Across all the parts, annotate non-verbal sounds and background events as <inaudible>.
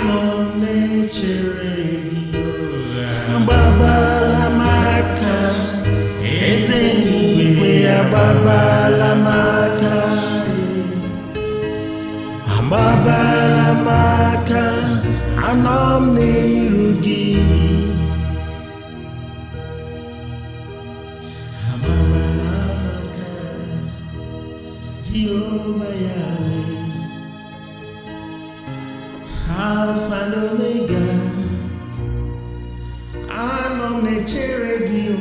agbabalamaka agbabalamaka anọ m n'iru gị agbabalamaka Jehova Yahweh Alpha and Omega. I'm Omnichiregio.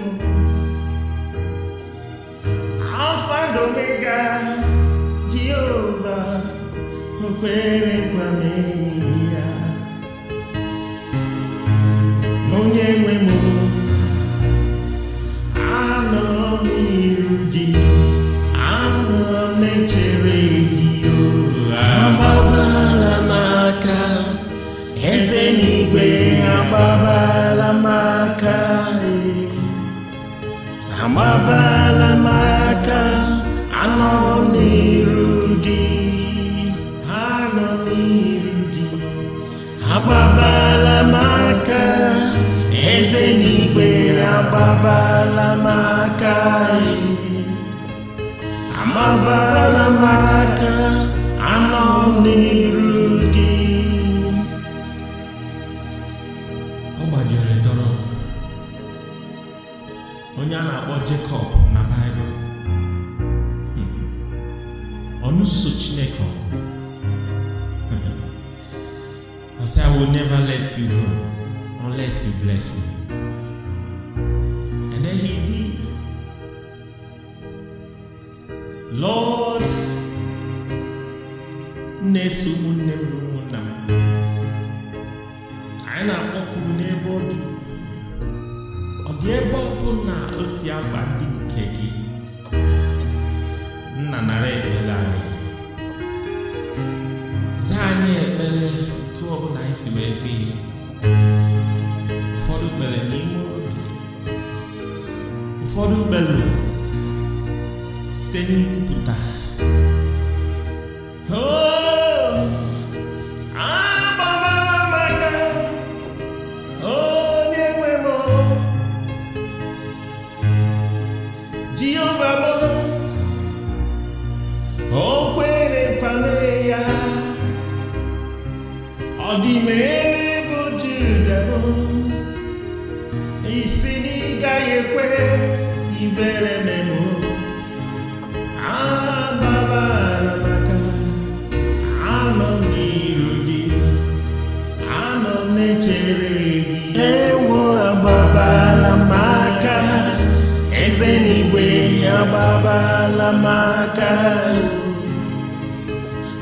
Alpha and Omega. Jehovah. Kwame. igwe amabala m aka amabala m aka anọ n'iru gị anọ n'iru gị agbabala m eze n'igwe agbabala m aka amabala anọ n'iru onye a na-akpọ Jekọb na baịbụl baibul hmm. Chineke <laughs> I say I will never let you go unless you bless me and then he did Lord na-eso ụmụnne m n'ebe ọkụ na o si agba ndị nke gị nna nara ekpere anyị zaa anyị ekpere otu ọbụla anyị si wee kpee ụfọdụ kpere n'ime obi ụfọdụ kpere site n'ikwupụta ìmẹ̀ bójú dẹ̀bọ̀ ìsìnìgáyé pé ìbẹ̀rẹ̀ mẹ́mọ́ àbábá alábàkà àmọ́ ní ìròdì àmọ́ mẹ́jẹrẹ yìí. ẹ̀wọ̀ àbábá alámàkà ẹsẹ̀ nígbè àbábá alámàkà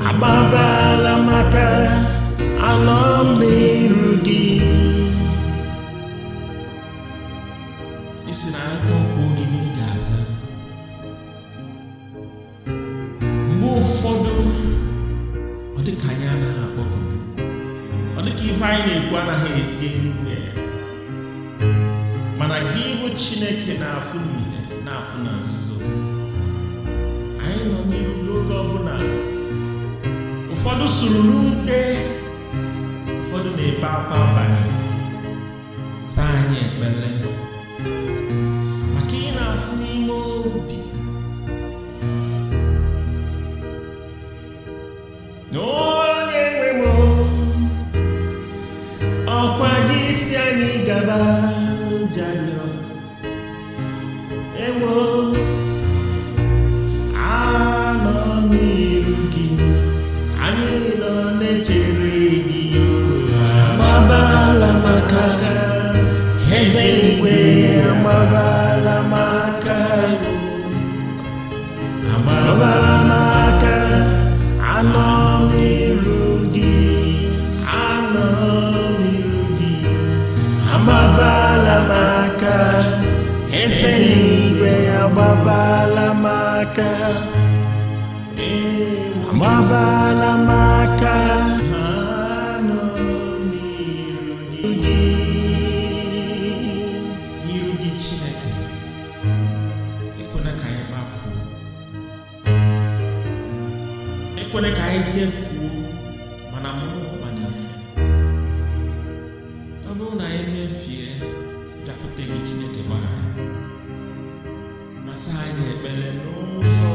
àbábá alámàkà. ife anyị na-ekwu anaghị eje nwe mana gị ịhụ chineke na-afụ n'ihe na-afụ na nzuzo anyị nọ n'iru n'oge ọbụla ụfọdụ sụrụ n'ute ụfọdụ na-ebe akwa abalị saa anyị ekpere Ilo maka eze igwe maka agbabala maka anọ n'iru gị maka eze igwe maka Mabala mata Ekone ka eje fuo mana mo mana afi. Ọbụrụ na anyị mefie dakwute gị Chineke gbaa, na saa anyị ekpere n'ụzọ